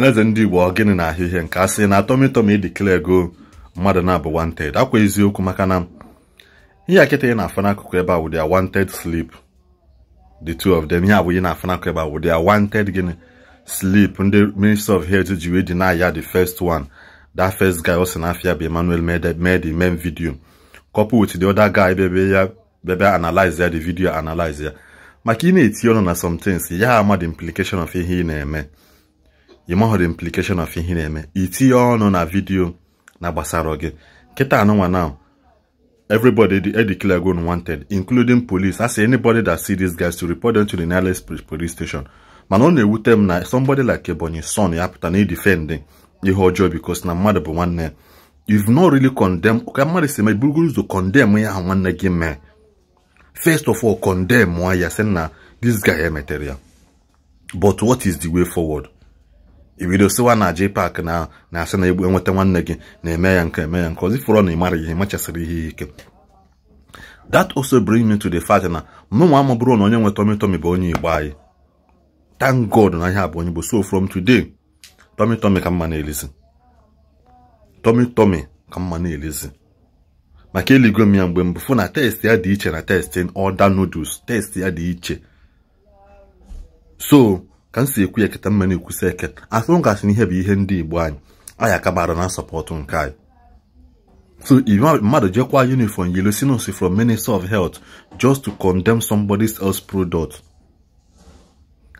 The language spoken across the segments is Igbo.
ọhaneze ndị igbo ọ gịnị na-ahịa ihe nke asị na atọmịtọm idikele ego mmadụ na-abụ wanted akwa eziokwu maka na ihe akịta ị na-afụ n'akụkụ ebe a wụdị a wanted sleep the two of them ihe abụ ị na-afụ n'akụkụ ebe a wụdị a wanted gịnị sleep ndị minister of health ji wee deny ya the first one that first guy ọ sị na afia bụ Emmanuel made the main video couple with the other guy bebe ya bebe analyze ya the video analyze ya maka ị na-eti ọnụ na some things ya ama the implication of ihe ị na-eme ị mahụrụ implication of ihe na-eme itinye ọnụ na vidio na gbasara gị kịta anụnwa now everybody declare go wanted including police as anybody that see dis guys to report them to the nearest police station mana ọ na-ewute m na somebody like Ebonyi son ya pụta na idefend ihe ọjọọ because na mmadụ bụ nwanne if you've not really condemn ka mmadụ si eme burugoro ụzọ condemn ya ha nwanne gị mee first of all condemn ya sị na this guy emetere ya but what is the way forward ibido sịwa na JPAC na na-asị na egbu enweta nwanne gị na-eme ya nke eme ya nke ozi fọrọ na ịmara ihe machasịrị ihe ike that also bring me to the fact na mụnwa m bụrụ na onye nwe tomi tomi bụ onye igbo anyị thank god na ihe a bụ onye bụ so from today tomi tomi ka mma na-elizi ka mma na-elizi maka eligo m ya mgbe mbụ fụ na test ya dị iche na testing order noodles test ya dị iche so ka m si ekwu ya eketa mma na-ekwusa eke atụ gasị ihe bụ ihe ndị igbo anyị anyị aka gbara na sọpọtụ nke anyị so mmadụ jekwa uniform yellow sinus from minister of health just to condemn somebody else product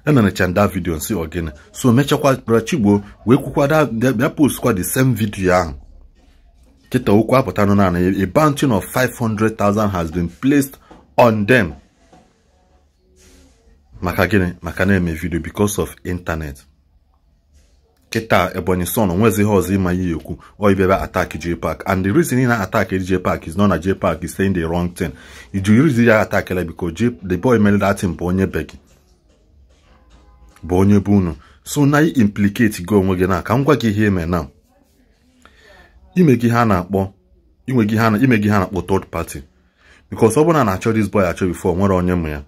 emerecha nda vidio nsi ogene so mechakwa bara chigbo wee kwukwada bịa postkwa the same video ahụ kịta okwu apụta nụ naanị a bounty of 500,000 has been placed on them maka gịnị maka na-eme vidio because of internet kịta ebonyi son onwezi ihe ọzọ ịma ya ekwu oibebe attack park and the reason ị na-attack park is not na park is saying the wrong thing iji reason ya atak attackla because the boy mere that thing bụ onye be gị bụ onye bụ unu so na implicate gị onwe gị na ka m gwa gị ihe eme na ime gị ha na-akpọ ime ha na-akpọ third party because ọ bụrụ na na-achọ this boy achọ before nwere onye mụ ya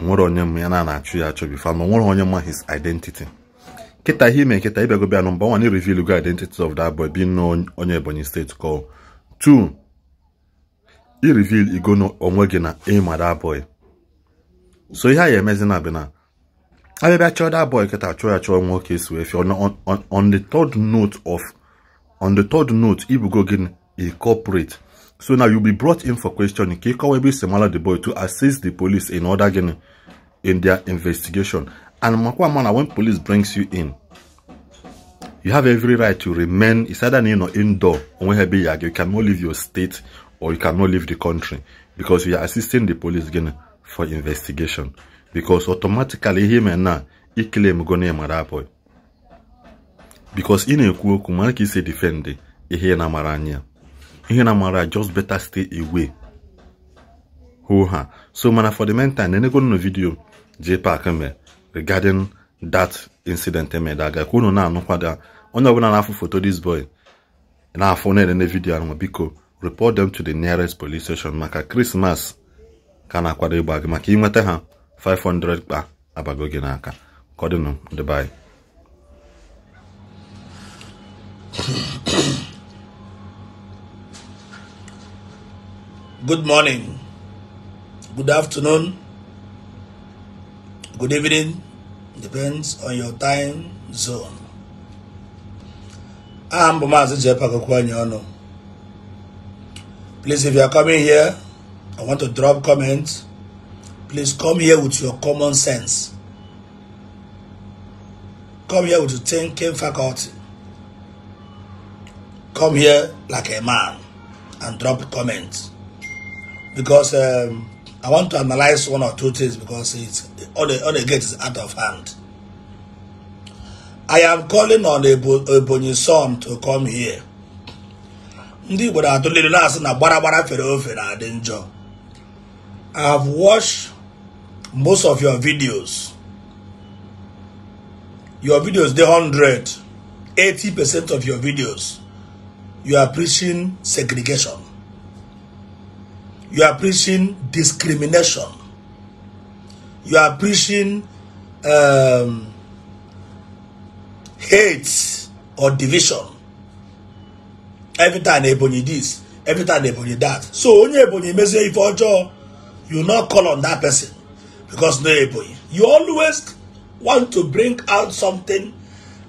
nwere onye m ya na na-achụ ya achọ bifo ma nwere onye ma his identity kịta ihe ime kịta ịbịago bịa nọmba one reveal go identity of that boy being nọ onye Ebonyi steeti call two i reveal ego onwe gị na ịma that boy so ihe a ya emezi na bụ na abịabịa chọọ that boy kịta chụọ ya chọọ nwoke esi wee fie on the third note of on the third note ibugo gị incorporate So now you'll be brought in for questioning. Kekawebe Semala the boy to assist the police in order getting in their investigation. And Makwamana, when police brings you in, you have every right to remain, it's either in or indoor, you cannot leave your state or you cannot leave the country because you are assisting the police again for investigation. Because automatically, him and now, he claim gonna mara boy. Because in a kuoku, man, he say defend, he na maranya. ihe na mara just better stay away hoo ha so mana for the meantime na enegonu nụ vidiyo JPAC regarding that incident emede aga ka unu na-anụkwada onye ọbụla na-afụ foto this boy na-afụ na-elele vidio ahụ biko report them to the nearest police station maka krismas ka na-akwado ịgba gị maka inweta ha 500 kpa abago gị n'aka kọdịnụ ndị Good morning, good afternoon, good evening, depends on your time zone. I am bụ Maazị Please if you are coming here, I want to drop comments. Please come here with your common sense. Come here with your thinking faculty. Come here like a man and drop comments because um, I want to analyze one or two things because it's all the all the gate is out of hand. I am calling on Ebonyi son to come here. Ndị Igbo na-atụliri na-asị na na I have watched most of your videos. Your videos, the hundred eighty 80% of your videos, you are preaching segregation. You are preaching discrimination. You are preaching um, hate or division. Every time Ebonyi this, every time Ebonyi that. So only Ebonyi may say if Ojo, you not call on that person because no Ebonyi. You always want to bring out something.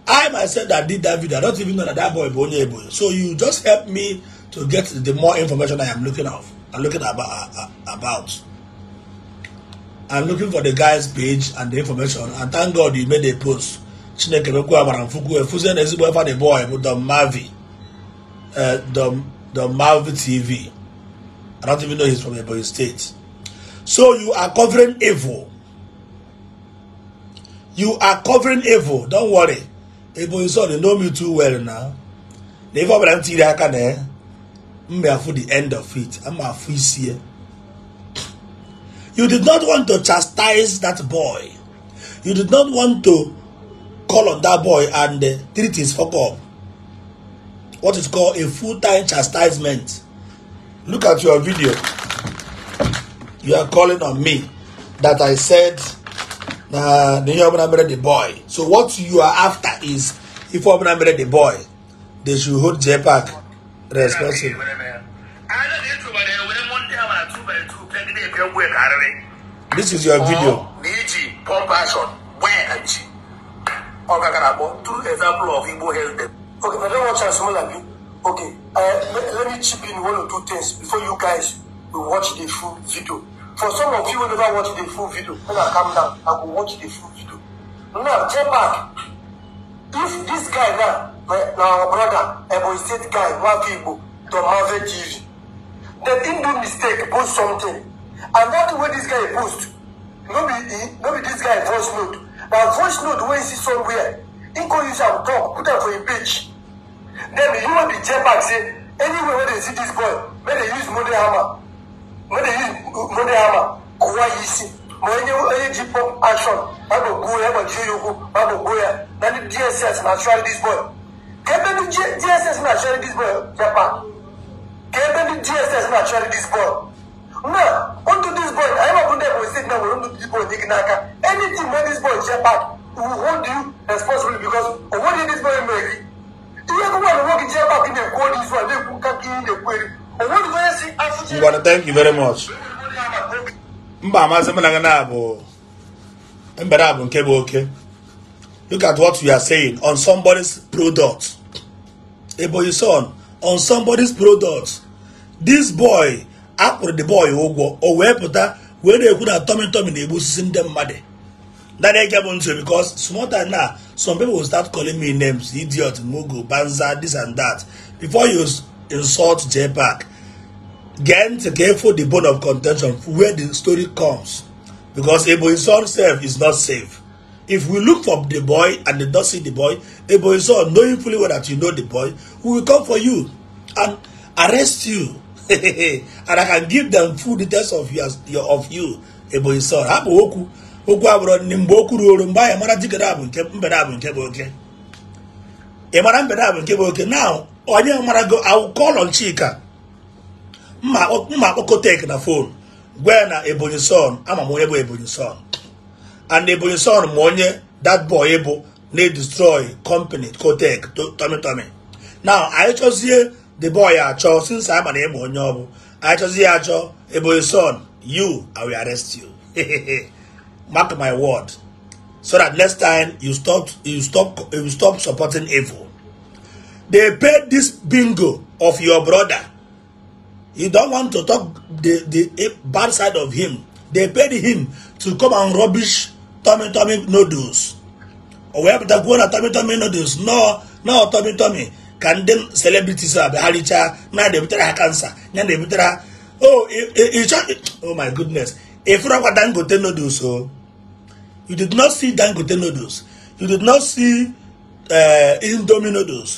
I myself that did that video, I don't even know that that boy Ebonyi Ebonyi. So you just help me to get the more information I am looking of. I'm looking about, about. I'm looking for the guy's page and the information and thank God you made a post. Chineke mekwu agbara mfukwu efuzie eh, na ezigbo efa the boy bụ Don Mavi Don eh, Mavi TV. I don't even know he's from Ebonyi State. So you are covering evil. You are covering evil. Don't worry. Ebonyi sọ they know me too well now. Na ife ọbụla m tiri aka na ya mbe for the end of it I'm isi here. you did not want to chastise that boy you did not want to call on that boy and uh, treat his fuck up what is called a full-time chastisement look at your video you are calling on me that i said na the young man married the boy so what you are after is if you am married the boy they should hold j park responsible. This is your video. Niji, Paul Passion, where and she. I don't watch as well as you. Okay, uh, let, let me chip in one or two things before you guys will watch the full video. For some of you who never watch the full video, when I come down, I will watch the full video. Now, check back. If this guy now na our brother Ebonyi State guy Nwafu Igbo Don a TV. Then him do mistake post something and that way this guy post no be he no be this guy voice note na voice note wey he see somewhere he go use am talk put am for him page then you human bin check back say anywhere wey dey see this boy make dey use modern hammer make dey use modern hammer kowa yi si ma onye onye ji pump action ma go gbuo ya ma ji oyi okwu ma go gbuo ya na the dss na try this boy ka ebe ndị DSS na-achọrị dis bọọlụ Japan ka ebe ndị DSS na-achọrị dis bọọlụ na ndụ dis bọọlụ anyị mabụ ndị Ebonyi steeti na nwere ndụ dis bọọlụ dị gị n'aka anything wey dis bọọlụ Japan will hold you responsibly because onweghị dis bọọlụ mere gị ihe gụgwa na nwoke Japan gị na-ekwu ọdị izu a na-ekwu ka gị na-ekwu eri onweghị onye si afụchi thank you very much mba amasị m na gị na-abụ nke bụ oke look at what you are saying on somebody's product Eboyison on somebody's product this boy after the boy ụgwọ oh, o oh, wee pụta wee na-ekwu na tomi tomi na-egbu osisi ndị mmadụ that dey get money because small time now some people will start calling me names idiot mugu banza this and that before you insult jpac get careful the bone of contention where the story comes because Eboyison self is not safe If we look for the boy and did not see the boy, a boy saw knowing fully well that you know the boy, we will come for you and arrest you. and I can give them full details of your, your of you. Ebo Isor, okwu okwu abụrụ ndị mgbe o kwuru oru mgbe mara jikere abụ nke mgbede abụ nke bụ oke ị mara mgbede abụ nke bụ oke na onye mara go awụkọlọ Chika mma na fon na Ebonyi son ama m onye bụ Ebonyi son and ebonyi on ma money that boy bụ they destroy company cotec tommy tommy now I just hear the boy I achọ since I'm an ịma onye I just hear, chọzie ya son you i will arrest you mark my word so that next time you stop you stop you stop supporting evil they paid this bingo of your brother you don't want to talk the the bad side of him they paid him to come and rubbish tummy tummy noodles o wee pụta kwuo na tummy tummy noodles nọọ nọọ tummy tummy ka ndị celebrities a bagharịchaa na na-ebutere ha kansa ya na-ebutere ha oh ịchọ oh my goodness ịfụrọkwa dangote noodles o oh, you did not see dangote noodles you did not see uh, indomie noodles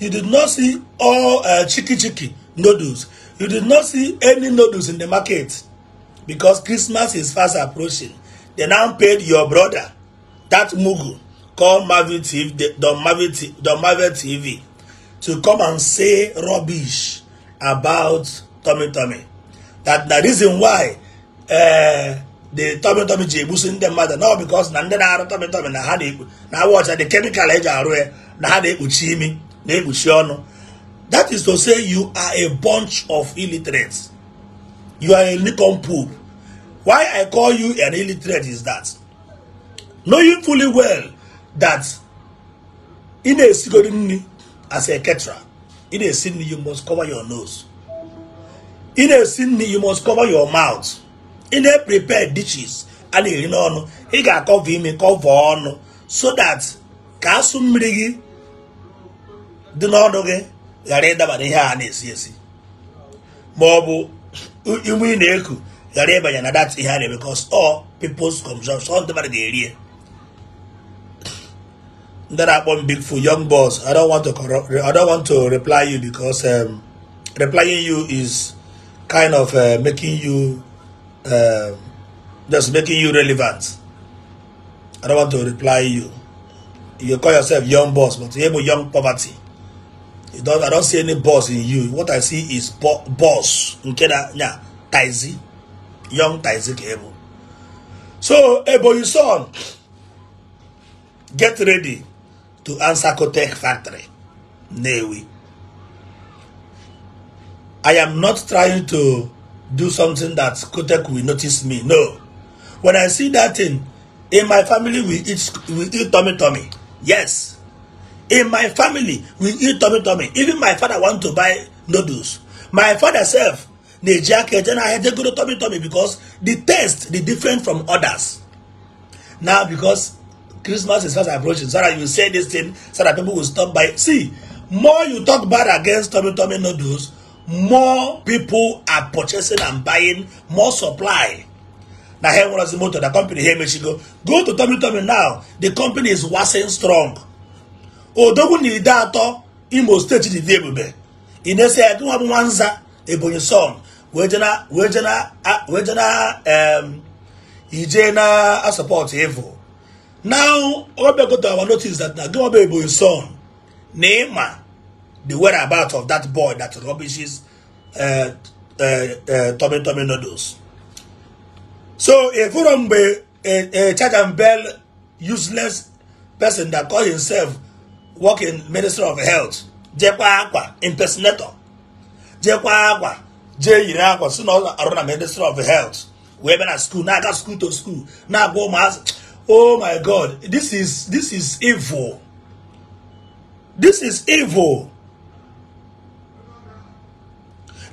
you did not see all uh, chiki chiki noodles you did not see any noodles in the market because christmas is fast approaching They now paid your brother, that Mugu, called marvel TV, the Marvin, TV, to come and say rubbish about Tommy Tommy. That the reason why uh, the Tommy Tommy ji ebuso ndị mmadụ no because na ndị na-arụ Tommy Tommy na ha na awọcha the chemical eji arụ ya na ha na-ekpuchi imi na-ekpuchi ọnụ that is to say you are a bunch of illiterates you are a nincompoop Why I call you an illiterate is that knowing fully well that in a nni as a ketra in a sin you must cover your nose. In a sin you must cover your mouth. In a prepared dishes and in on he got cover him cover on so that ka asụ mmiri gị dị n'ọnụ gị ghara ịdaba n'ihe a na-esi esi ma ọ bụ ị na-eku ghara ịbanye na that ihe because all people's consumption ndị mmadụ ga-eri ndị na-akpọ m big fool young boss I don't want to I don't want to reply you because um, replying you is kind of uh, making you uh, just making you relevant I don't want to reply you you call yourself young boss but you have young poverty you don't I don't see any boss in you what I see is bo boss okay na nya young Isaac Abel. So Ebony's son, get ready to answer Kotech factory. Newi. I am not trying to do something that Kotek will notice me. No. When I see that thing, in my family we eat we eat tummy tummy. Yes. In my family we eat tummy tummy. Even my father want to buy noodles. My father self na-eji aka eje n'ahịa je goro tomi tomi because the taste the different from others now because Christmas is fast approaching so that you say this thing so that people will stop by see more you talk bad against tomi tomi noodles more people are purchasing and buying more supply na here one of the motor the company here she go go to tomi tomi now the company is waxing strong odogwu na ide atọ imo steeti dị dị ebube ị na-esi ya nwa bụ nwanza ebonyi son wee na wee na um, ije na a support evil now obiagoto our notice that na gimobe ebonyi son na ịma the about of that boy that rubbishes eh, eh, eh, Tommy Tommy noodles so efuro mgbe a e, e, church and bell useless person that call himself working minister of health jekwa akwa impersonator jeekwa akwa jee yiri akwa si na ọ ministry of health wee bịa na school na-aga school to school na-agba ụmụazị oh my god this is this is evil this is evil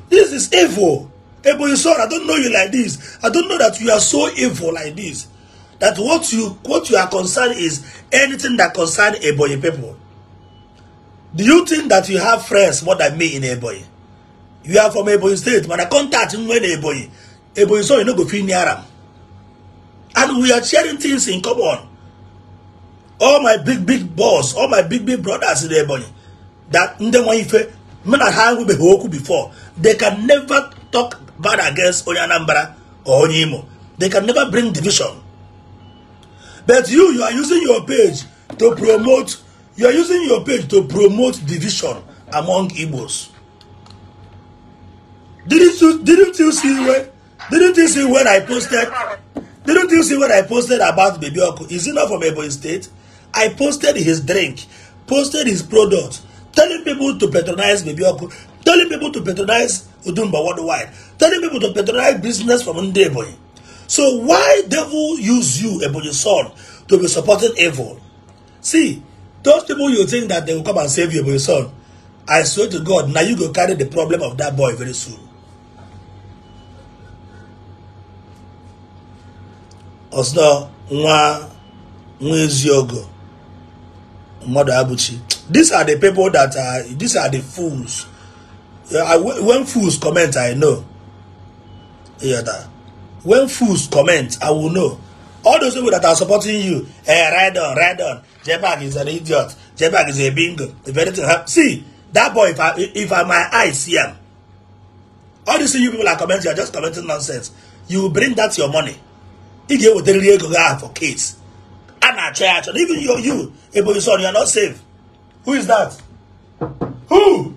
this is evil Ebony son, I don't know you like this. I don't know that you are so evil like this. That what you what you are concerned is anything that concerns Ebony people. Do you think that you have friends more than me in Ebony? you are from ebonyi state mana contact nwe na ebonyi ebonyi so you no go fit near am and we are sharing things in common all my big big boss all my big big brothers in ebonyi that ndị nwa ife me na with nwubeghị okwu before they can never talk bad against onye anambra or onye imo they can never bring division but you you are using your page to promote you are using your page to promote division among igbos Didn't you didn't you see when didn't you see when I posted didn't you see when I posted about Baby Oku? Is it not from Ebony State? I posted his drink, posted his product, telling people to patronize Baby Oku, telling people to patronize Udumba worldwide, telling people to patronize business from Ndeboy. So why devil use you, Ebony son, to be supporting evil? See, those people you think that they will come and save you, Ebony son, I swear to God, now you go carry the problem of that boy very soon. ọsọ nwa nwa eziogo mmadụ abụchi these are the people that are these are the fools uh, I, when fools comment i know yeah, when fools comment i will know all those people that are supporting you eh ride on ride on jebag is an idiot jebag is a bingo if anything happen see that boy if i if i my eye see am all these you people are commenting you are just commenting nonsense you bring that your money ị ga-ewetarịrị ego gị ahụ for kids a na-achọ ya achọ even your you Ebonyi son you are not safe who is that who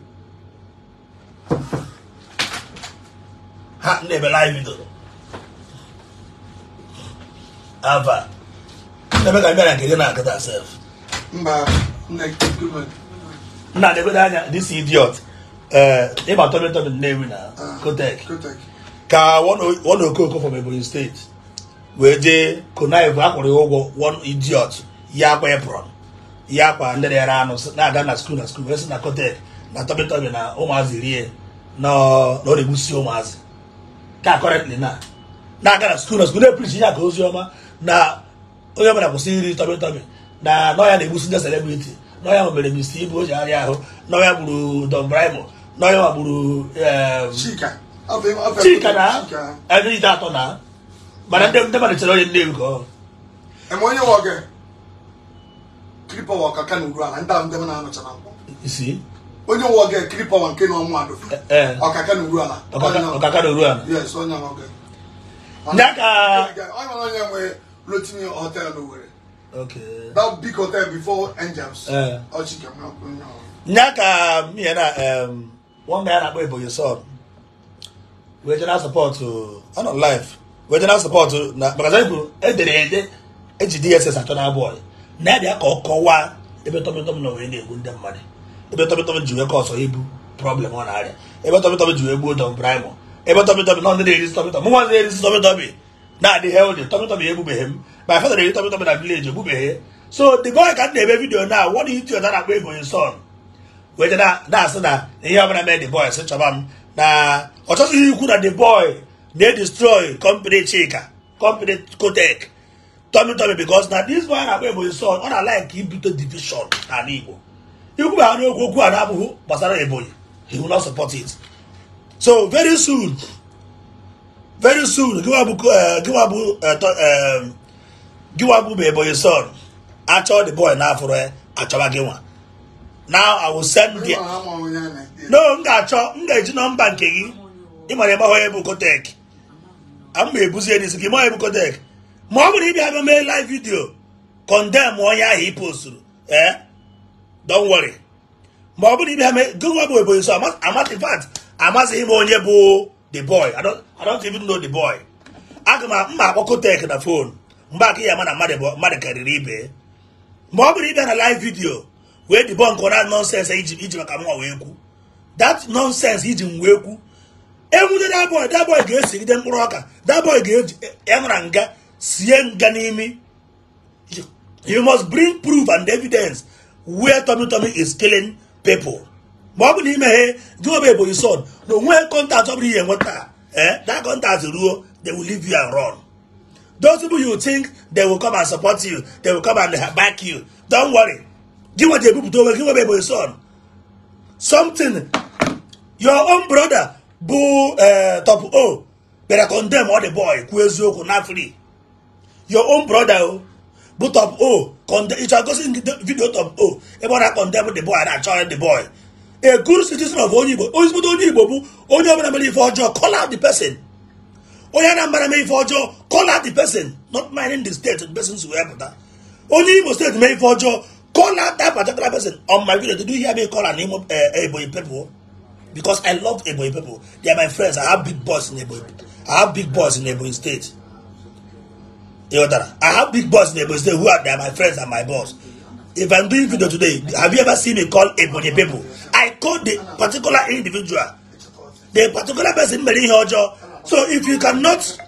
ha na-ebela anyị bidoro ava ebe ka bịara nke gị na-agụta sef nna na-egodo anya this idiot eh, ịba tọmịtọmị nnewi na ah, kotek ka ọ na okooko from Ebonyi state wee jee konive akwụrụ ya ụgwọ one idiot ya kwa apron ya akwa ndị na anụ na-aga na skul na skul wee si na kotek na tọbịtọbị na ụmụazị rie na ọ na-egbusi ụmụazị ka kọrentị na na-aga na skul na skul na-eprichi ya ka ozi ọma na onye ọbụla kwụsị iri tọbịtọbị na nọya na-egbusi ndị selebriti nọya nwebere mist ibu o ji arịa ahụ nọya gburu don bribo nọya magburu chika na ebe ite atọ na bana ndem ndema ne kyerɛ ndem kɔ ɛmɔ nyɛ wɔ kɛ kiripa wɔ kaka ne wura la ntaa ndem na ano kyɛnɛ nkɔ si onye wɔ kɛ kiripa wɔ nke na ɔmo ado ɔkaka ne wura la ɔkaka ne wura la yes ɔnyɛ wɔ kɛ nyaka ɔnyɛ wɔ nyɛ wɔ lotini hotel no wɛrɛ okay that big hotel before angels ɔkyi kɛmɛ ɔkɔ nyɛ wɔ nyaka mmiɛnna ɛɛm wɔn mmiɛnna akpɔ eboyi sɔɔ Regional support ɔnɔ uh, life. regional support na maka anyị edere ede eji dss atọ na bọọlụ na-abịa ka ọ kọwaa ebe tọmịtọm na wee na-egbu ndị mmadụ ebe tọmịtọm ji wee kọsọ ibu problem ọ na-arịa ebe tọmịtọm ji wee gbuo dọm braịmọ ebe tọmịtọm na ndị na-erisi tọmịtọm mụ nwazi na-erisi tọmịtọm na-adị heldi tọmịtọm ya egbubeghị m ma fedra eri tọmịtọm na vileji egbubeghị so the boy ka m na-eme vidiyo na wọd yutu ọta na-akpọ ebonyi son wee je na-asị na ihe ọbụla mee the boy sị chọba m na ọ ikwu na the boy dey destroy company chika company kotek tummy tummy because na dis one agba ebo son ọ na-like ibute division n'ala igbo ikwu ha n'okwu okwu a na-abụghị gbasara ebonyi he will not support it so very soon very soon giwabụ eh, eh, eh, bụ ebonyi son achọ the boy n'afọrọ achọba achọwa nwa now i will send the no m ga-achọ m ga-eji nọmba nke gị ị mara ebe bụ kotek ama ebuzie n'isi gị ma ebukọtek ma ọ bụrụ ịbịa bịa mee live video condemn onye ahụ ị posturu ee eh? don't worry ma ọ bụrụ ịbịa mee gụwa bụ ebonyi so amati fat amazighị m onye bụ the boy i don't even know the boy aga m mma akpọ kotek na fon mgbe aka ya ama na mmadụ karịrị ibe ma ọ bụrụ ịbịa na live vidio wee dibọ nke ọra nọnsens iji maka mụnwa wee kwu that nonsense iji m wee kwu enwude daboi daboi ga-esi mkpụrụ ọka daboi ga-enara nga sie nga n'imi you must bring proof and evidence where Tommy Tommy is killing people ma ọ bụ na imeghe gị obe bụ isod na onweghị kọntaktị ọ bụrụ ihe nweta eh that contact ruo they will leave you and run those people you think they will come and support you they will come and back you don't worry gị nweje ebupụta onwe gị nwebe bụ isod something your own brother bụ eh, top o bịara condemn ọ dị boy kwuo eziokwu na free your own brother o bụ top o ịchọ gosi vidio top o ebe ọ na-akọndemn the boy na-achọ the boy a good citizen of onye igbo onye igbo bụ onye ọbụla mere ife ọjọọ call out the person onye anambra mee ife ọjọọ call out the person not minding the state the person wee pụta onye igbo steeti mee ife ọjọọ call out that particular person on my video did you eh, eh, Ebonyi because I love Ebonyi people. They are my friends. I have big boys in Ebonyi. I have big boys in Ebonyi State. I have big boys in Ebonyi State who are they are my friends and my boss. If I'm doing video today, have you ever seen me call Ebonyi people? I call the particular individual, the particular person Mary Hojo. So if you cannot,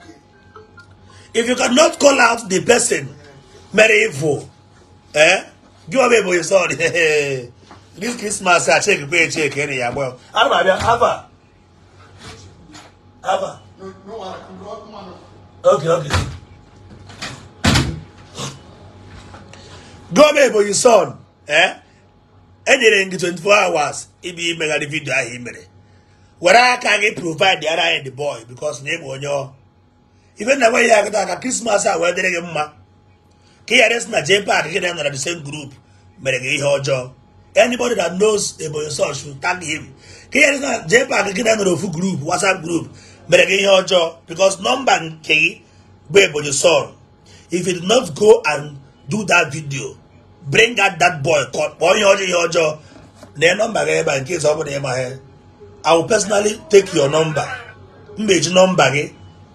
if you cannot call out the person Mary Ivo, eh? Give away Ebonyi, sorry. dis krismas a cheki kwe cheki ene ya gbọ ana m abịa hava hava okay okay gọọmenti ebonyi son eh enyere gị 24 hours ibi imegharị vidio ahụ i mere were aka gị provide ara anyị the boy because na ịbụ onye ife na nwe ihe aka krismas a wee dịrị gị mma ka ị ghara esi na jepad gị na nọ na the same group mere gị ihe ọjọọ Anybody that knows Eboyosor should tag him. Can you understand? JPAC get another full group, WhatsApp group. But again, your job because number K, Eboyosor. If he did not go and do that video, bring out that boy. Boy, your your job. Their number in case somebody in my head. I will personally take your number. Mbeji number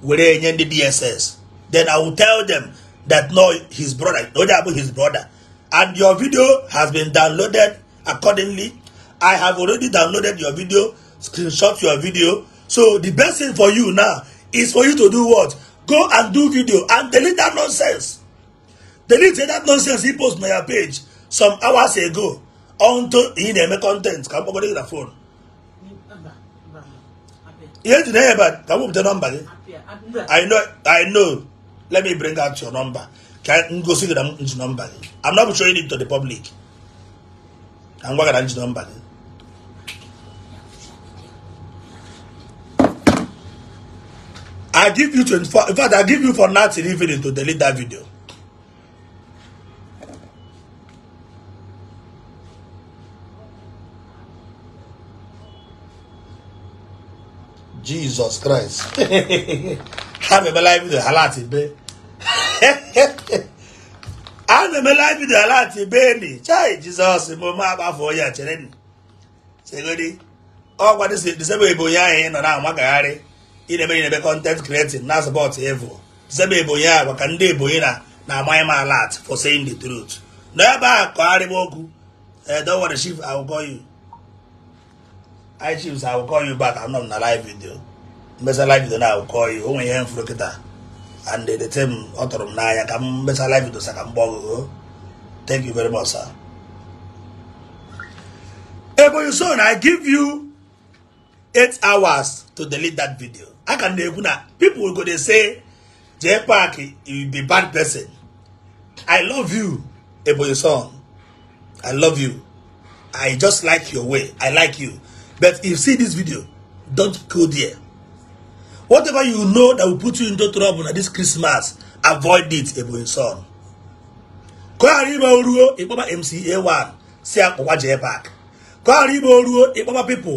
were nye the DSS. Then I will tell them that no, his brother, no, that his brother and your video has been downloaded accordingly. I have already downloaded your video, screenshot your video. So the best thing for you now is for you to do what? Go and do video and delete that nonsense. Delete that nonsense he posted on your page some hours ago onto in content. Come on, the phone. Yes, neighbor, number. I know, I know. Let me bring out your number. Can go see njinọ number. i I'm not showing it to the public I'm gị na njinọ number. I give you 24 in fact I give you for nothing even to delete that video Jesus Christ ha mebela ibi ala ati bee ana m live video ala ni chai jizọs m ma agbafọ ya chere chegodi ọgwa disebe ebonyi anyị nọ na amagagharị ịnebe ịnebe kọntent creating na support evil disebe ebonyi a ka ndị ebonyi na na amaghị m alat for saying truth n'ebe a kọgharịba okwu eh, don't okwu chief I will call you I chiefs I anọ m na live video mmesa live video na I will o nwere ihe m kịta and the time ọ tụrụ m n'anya ka m mesa live video sa ka m gba ọgụgụ thank you very much sir Ebonyi Son I give you eight hours to delete that video I can na-ekwu na people go dey say Jay Park you be bad person I love you Ebonyi Son I love you I just like your way I like you but if you see this video don't go there Whatever you know that will put you into trouble na this Christmas, avoid it, Ebonyi son. Ka ọ ghara ime oruo ịkpọba MCA1 si akpụwa jee back. Ka ọ ghara ime oruo ịkpọba pipo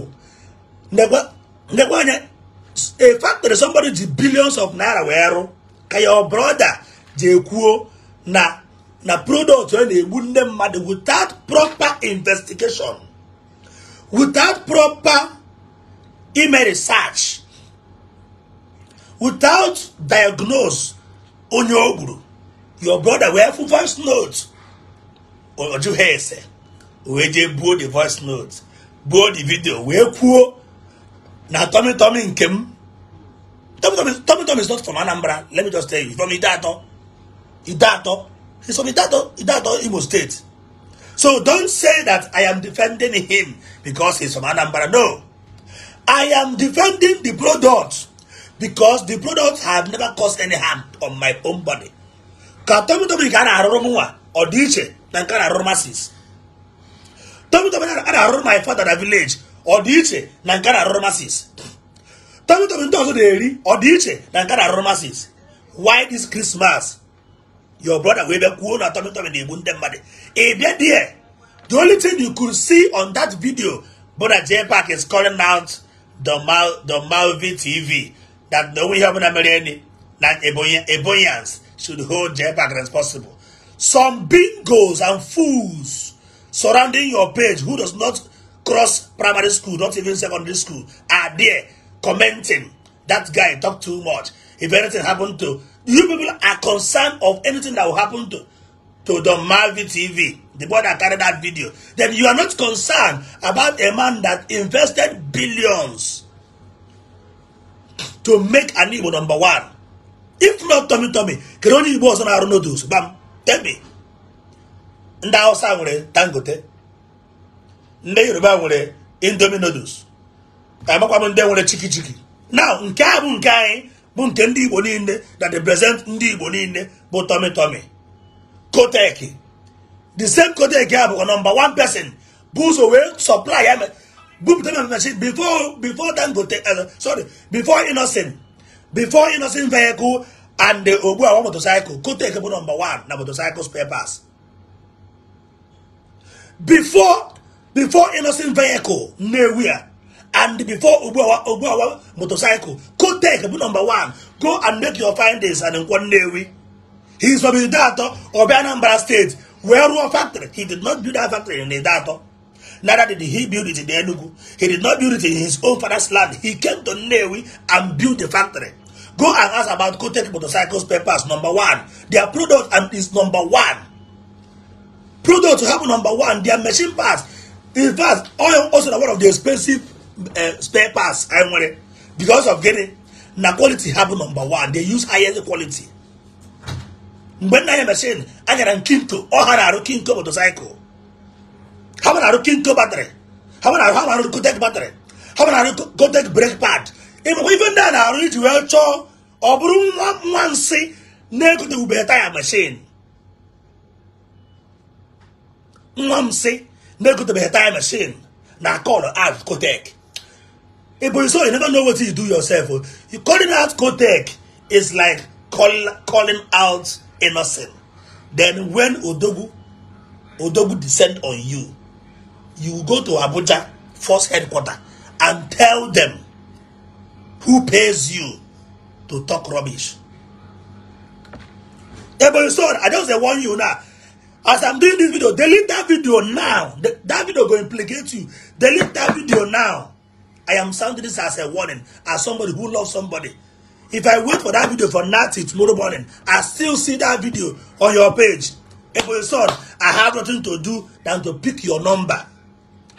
Ndekwa anya a factory somebody ji billions of naira wee rụ ka your brother jee kwuo na na product onye na-egbu nde mmadụ without proper investigation without proper ime research without diagnose onye o your brother wee fụ voice note ọjụ ha ese wee jee buo the voice note buo the video wee kwuo na tommy tommy nke m tommy tommy is not from anambra let me just tell you from idato idato he's from idato idato imo state so don't say that i am defending him because he's from anambra no i am defending the product because the products have never caused any harm on my own body ka tomi tomi nke a na-arụrụ m nwa ọ dị iche na nke a na-arụrụ masis tomi tomi a na-arụrụ my father na village ọ dị iche na nke a na-arụrụ masis tomi tomi ndị ọzọ na-eri ọ dị iche na nke a na-arụrụ masis why this christmas your brother wee bịa kwuo na tomi tomi na-egbu ndị mmadụ ị bịa die the only thing you could see on that video bụ na jpac is calling out the Mal the Malvi TV that the only heaven American like Ebonians should hold their JPAC possible. Some bingos and fools surrounding your page who does not cross primary school, not even secondary school, are there commenting. That guy talked too much. If anything happened to you people are concerned of anything that will happen to to the Malvi TV, the boy that carried that video, then you are not concerned about a man that invested billions to make an Igbo number one if not Tommy Tommy kere onye Igbo ọzọ na-arụ noodles gbam me ndị awụsa nwere Dangote ndị Yoruba nwere Indomie noodles amakwa m ndị nwere chiki chiki now nke a bụ nke anyị bụ nke ndị Igbo niile that represent ndị Igbo niile bụ Tommy Tommy Kotek the same Kotek a bụkwa number one person bụ ụzọ wee supply ya before before uh, sorry, before Innocent, before Innocent vehicle and the Obuawa motorcycle could take number one, number motorcycle spare pass. Before before Innocent vehicle, nowhere. And before Obuawa, motorcycle could take number one, go and make your findings and in one day. He is from Idato, State, where one factory. He did not do that factory in data. Neither did he build it in Enugu. He did not build it in his own father's land. He came to Newi and built the factory. Go and ask about Kotek Motorcycles papers, number one. Their product and is number one. Product to have number one. Their machine parts. In fact, oil also one of the expensive uh, spare parts. I want Because of getting na quality have number one. They use higher quality. When I am machine, I get a kinto or a kinto motorcycle. How about I king go battery? How about I how about go take battery? How about I go take brake pad? Even even then I read well cho or broom one see nego to be tire machine. Mom see nego to be tire machine. Now call her out go take. Hey, but so you never know what you do yourself. You calling out Kotek is like call, calling out innocent. Then when Odogu, Odogu descend on you, you go to Abuja force headquarters and tell them who pays you to talk rubbish. Yeah, but I just warn you now. As I'm doing this video, delete that video now. that video going implicate you. Delete that video now. I am sounding this as a warning, as somebody who loves somebody. If I wait for that video for Nati tomorrow morning, I still see that video on your page. If you son, I have nothing to do than to pick your number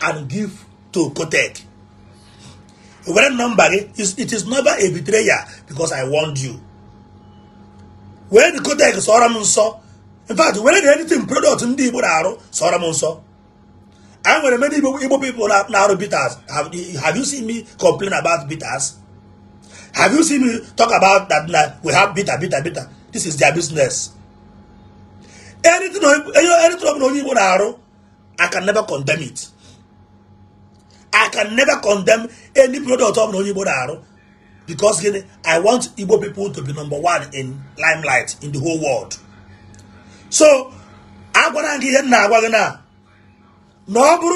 and give to Kotek. Were number it is never a betrayer because I warned you. Where the Kotek sọrọ m in fact were the anything product ndị Igbo na-arụ sọrọ m nsọ I nwere many Igbo people na-arụ bitters have you seen me complain about bitters? Have you seen me talk about that we have bitter bitter bitter this is their business. Anything ọ na onye Igbo na-arụ I can never condemn it. I can never condemn any product of Onyibo Daru because gini, I want Igbo people to be number one in limelight in the whole world. So, agwara gị ihe nna agwa gị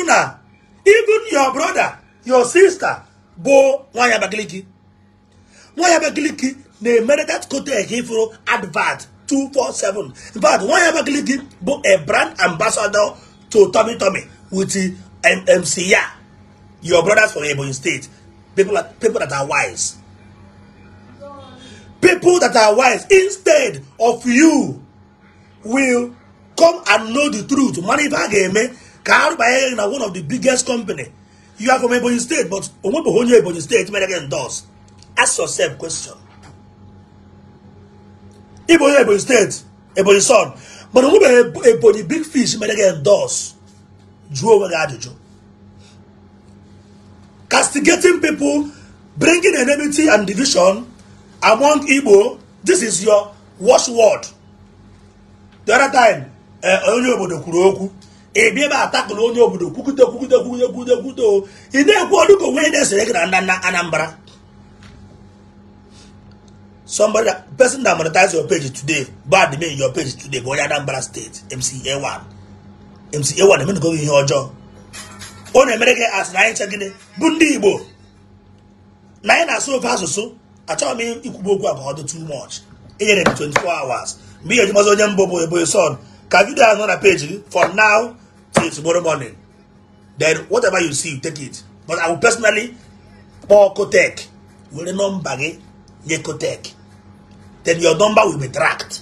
na even your brother, your sister bụ nwaanyị Abakaliki nwaanyị Abakaliki na-emere that kotek ifuru advert 247 in fact nwaanyị Abakaliki a brand ambassador to Tommy Tommy with the ya your brothers from Ebonyi State, people, that people that are wise. People that are wise, instead of you, will come and know the truth. Manivageme, eh, Karubaye na one of the biggest company. You are from Ebonyi State, but Omobohonyo Ebonyi State, again does. Ask yourself question. Ebonyi Ebonyi State, Ebonyi son, but Omobohonyo Ebonyi Big Fish, again does. Drew over the attitude. castigating people, bringing enmity and division among Igbo. This is your word. The other time, eh, onye obodo kwuru okwu ebe ebe atakụrụ onye obodo kwukute kwukute kwukute kwukute kwukute ị na-ekwu ọdụ ka onwe na-esere gị na nna Anambra somebody that, person that monetize your page today bad me your page today bụ onye Anambra State MCA1 MCA1 emenụgo ihe ọjọọ ọ na-emere gị asị na anyị nche gịnị bụ ndị igbo na anyị na-asụ ofe asụsụ achọghị m ikwugbu okwu abụọ dị too much inyere m 24 hours mgbe ihe ejimazi onye mbụ bụ Eboy Son ka vidio ahụ nọ na page gị from now till tomorrow morning then whatever you see you take it but I will personally kpọọ Kotek were nọmba gị nye Kotek then your number will be tracked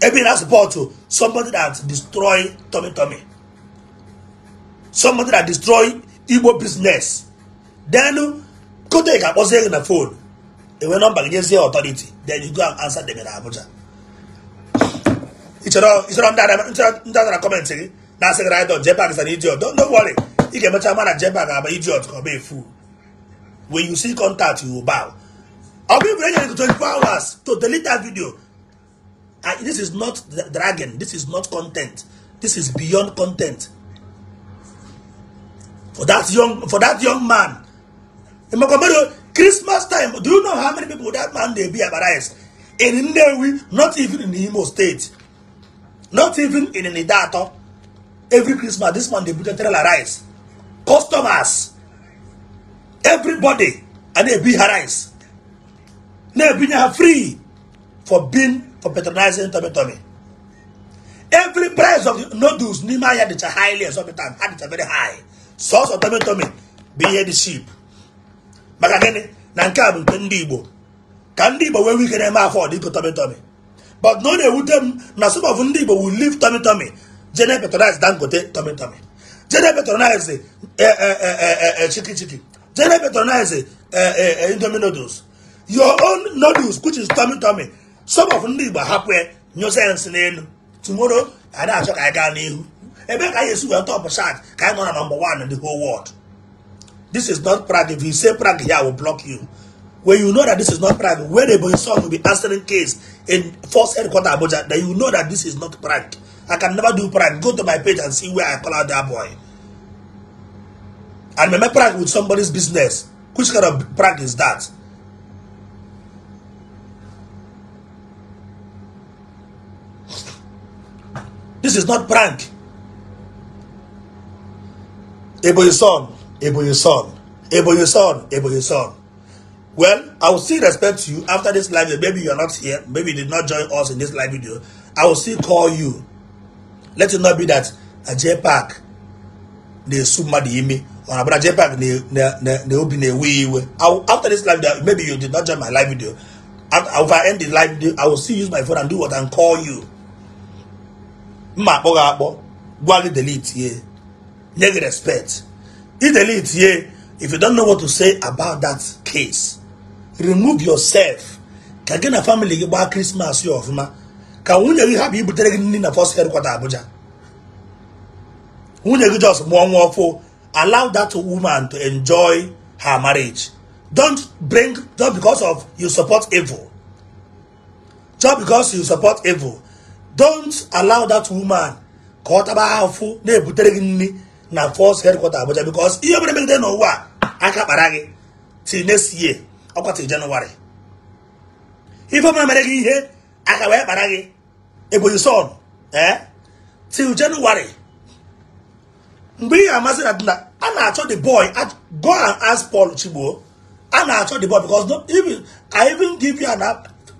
ebe na support somebody that destroy tummy tummy somebody that destroy Igbo business. Then go take a person in the phone. They went on back against the authority. Then you go and answer them in Abuja. It's not it's not that that comment again. Now say right on Jepak is an idiot. Don't worry. You can mention man at Jepak I'm an idiot or be a fool. When you see contact, you will bow. I'll be ready to 24 hours to delete that video. And this is not dragon. This is not content. This is beyond content. for that young for that young man. Christmas time, do you know how many people that man they be embarrassed? In Nnewi, not even in Imo State, not even in Nidato. Every Christmas, this man they put a trailer rice. Customers, everybody, and they be rice. They be free for being for patronizing tummy tummy. Every price of noodles, Nima had the highly or something, had it very high. sọsọ tomi tomi bụ ihe dị ship maka gịnị na nke a bụ nke ndị igbo ka ndị igbo nwee ike na-eme afọ dịpụ tomi tomi but na ọ na-ewute m na some of ndị igbo will leave tomi tomi jene patronize dangote tomi tomi jene patronize eh, eh, eh, chiki chiki jene patronize indomie noodles your own noodles which is tomi tọmị some of ndị igbo hapụ ya nyụsa ya nsị n'elu tomorrow a na-achọ ka anyị gaa n'ihu ebe ka yesu wee top chart ka anyị nọ na number one in the whole world this is not prague if you say prague here i will block you when you know that this is not prague when the boy son will be answering case in first headquarter abuja then you know that this is not prague i can never do prague go to my page and see where i call out that boy and meme prague with somebody's business which kind of prague is that This is not prank son, son, Eboyison, Eboyison, Eboyison, son. Well, I will still respect you after this live video. Maybe are not here. Maybe you did not join us in this live video. I will still call you. Let it not be that a J Park they mmadụ imi or about J Park they obi na-ewe After this live video, maybe you did not join my live video. After, if I end the live video, I will still use my phone and do what and call you. Ma boga gị gwa gị delete here. Neg respect if the lead here if you don't know what to say about that case remove yourself ka gị na family gị gbaa krismas ya ọfụma ka nwunye gị hapụ ibutere gị nri na fọs hedkwata abuja nwunye gị jos mụọ nwa ọfụ allow that woman to enjoy her marriage don't bring just because of you support evil just because you support evil don't allow that woman ka ọ taba ahụfụ na-ebutere gị nri na force headquarter abuja because ihe mere megide n'ụwa aka kpara gị till next year ọkwa till January ife mere mere gị ihe aka wee kpara gị ebonyi son ee eh, till January mgbe ihe amasị na dina a na-achọ the boy go and ask Paul Chigbo a na-achọ the boy because no, even, I even give you an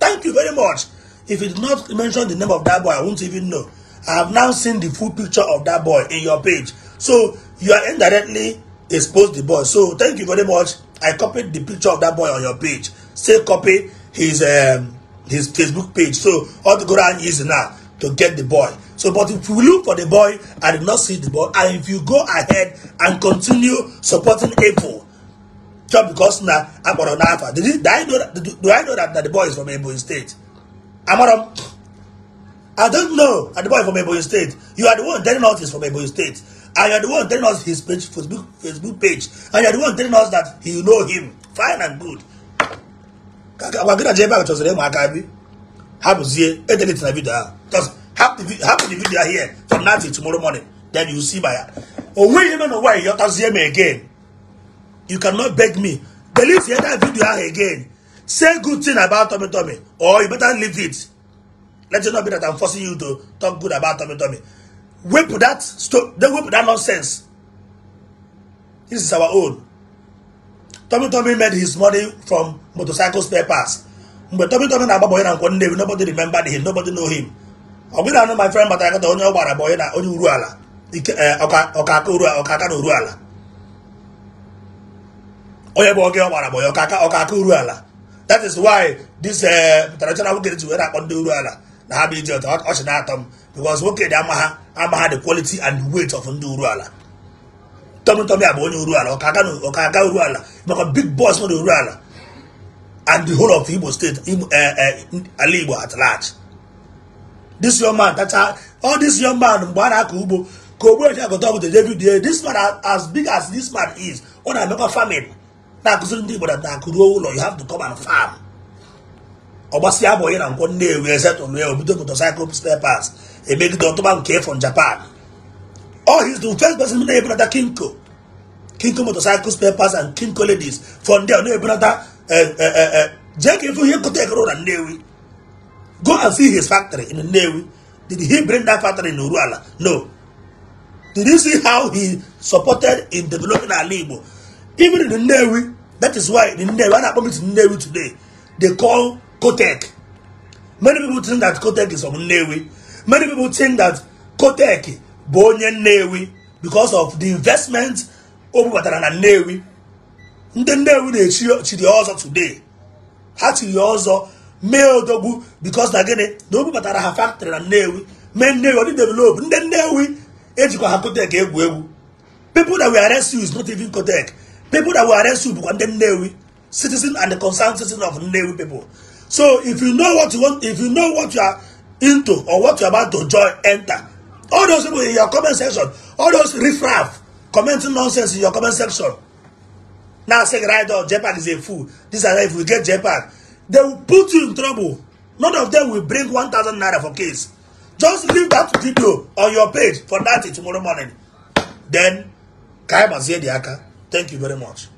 thank you very much if you did not mention the name of that boy I won't even know I have now seen the full picture of that boy in your page So you are indirectly exposed the boy. So thank you very much. I copied the picture of that boy on your page. Say copy his um, his Facebook page. So all the go is now to get the boy. So, but if you look for the boy I did not see the boy, and if you go ahead and continue supporting Apple, just because now I'm on Alpha, did do I know that, do, do I know that, that the boy is from Ebo State? I'm on, I don't know that the boy is from Ebo State. You are the one telling us he's from Ebo State. and you're the one telling us his page, Facebook, Facebook page, and you're the one telling us that you know him. Fine and good. Agwa gị na jebe ahụ chọsịrị ịmụ aka bi hapụzie edelete na vidio ahụ just hapụ the video here from now till tomorrow morning then you see by o nweghị ime n'ụwa ihe ọtazie m again you cannot beg me believe delete that video ahụ again say good thing about tummy tummy or you better leave it let it not be that I'm forcing you to talk good about tummy tummy wepụ that stone then wepụ that nonsense this is our own Tommy Tommy made his money from motorcycle spare parts mgbe Tommy Tommy na-agba bọyị na nkwọ Nnewi nobody remember him nobody know him ọ bụghị anụ my friend Batakata onye ọ gbara bọyị na onye uru ala eh, aka na uru ala onye bụ oge ọ gbara bọyị aka uru ala that is why this eh, traditional nwoke ji were akpọ ndị uru ala na ha bụ ije ọchị na-atọ m because nwoke dị ama ha ama ha the quality and the weight of ndị uruala tọmị tọmị a bụ onye uruala ọka aga ala maka big boss uru ala and the whole of Igbo state eh, eh, ala Igbo at large this young man tacha all this young man mgbe a na-akọ ugbo ka ogbe eji agụta ọgụ every day this man as big as this man is ọ na-emekwa famine na-akụziri ndị Igbo na na-akụruo ụlọ you have to come and farm ọgbasịa abụghị na nkwọ nnewi ezetụlụ ya obido motorcycle stepers. made the okay, from Japan. oh, he's the first person to another Kinko. Kinko motorcycles, papers, and Kinko ladies. From there, no brother. Uh, uh, uh, Jack, if you could take road and Newi, go and see his factory in Navy. Did he bring that factory in Uruala? No. Did you see how he supported in developing our labor? Even in the Navy, that is why in Navy, what happened to Navy today, they call Kotek. Many people think that Kotek is from Navy. Many people think that Koteki bụ onye Nnewi because of the investment o bubatara na Nnewi ndị Nnewi na-echiri ọzọ today ha chiri ọzọ mee odogwu because na gịnị na o bubatara ha factory na Nnewi mee Nnewi ọ dị develop ndị Nnewi ejikwa ha Koteki egwu egwu people that we arrest you is not even Koteki people that we arrest you bụkwa ndị Nnewi citizen and the concerned citizen of Nnewi people so if you know what you want if you know what you are into or what you're about to join enter. All those people in your comment section, all those riffraff commenting nonsense in your comment section. Now say right or JPAC is a fool. This and if we get JPAC, they will put you in trouble. None of them will bring one thousand naira for case. Just leave that video on your page for that tomorrow morning. Then, Kai Mazie Diaka, thank you very much.